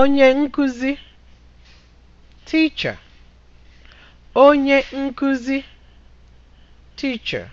onye nkuzi teacher onye nkuzi teacher